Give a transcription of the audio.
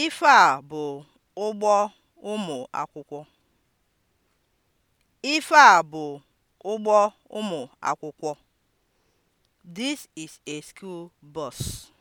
Ife a bụ ụgbọ ụmụ akwụkwọ. Ife a bụ ụgbọ ụmụ akwụkwọ. This is a school bus.